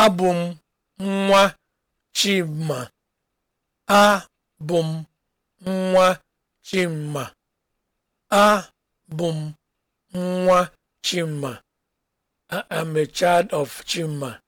Abụ m nwa Chima. I am a child of Chima.